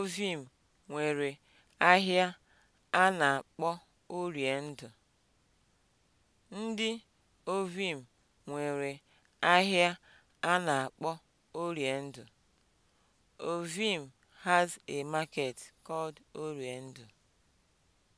Ovim nwere ahịa a na-akpọ Orie Ndị Ovim nwere ahịa a na-akpọ Orie Ndụ. Ovim has a market called Orie